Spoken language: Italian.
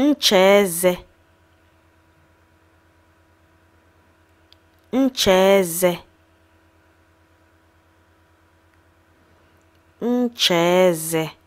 nchèezè nchèezè nchèezè